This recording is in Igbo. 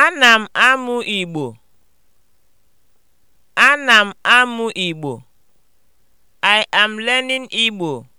Ana m amụ Igbo. Ana amụ Igbo. I am learning Igbo.